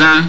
aza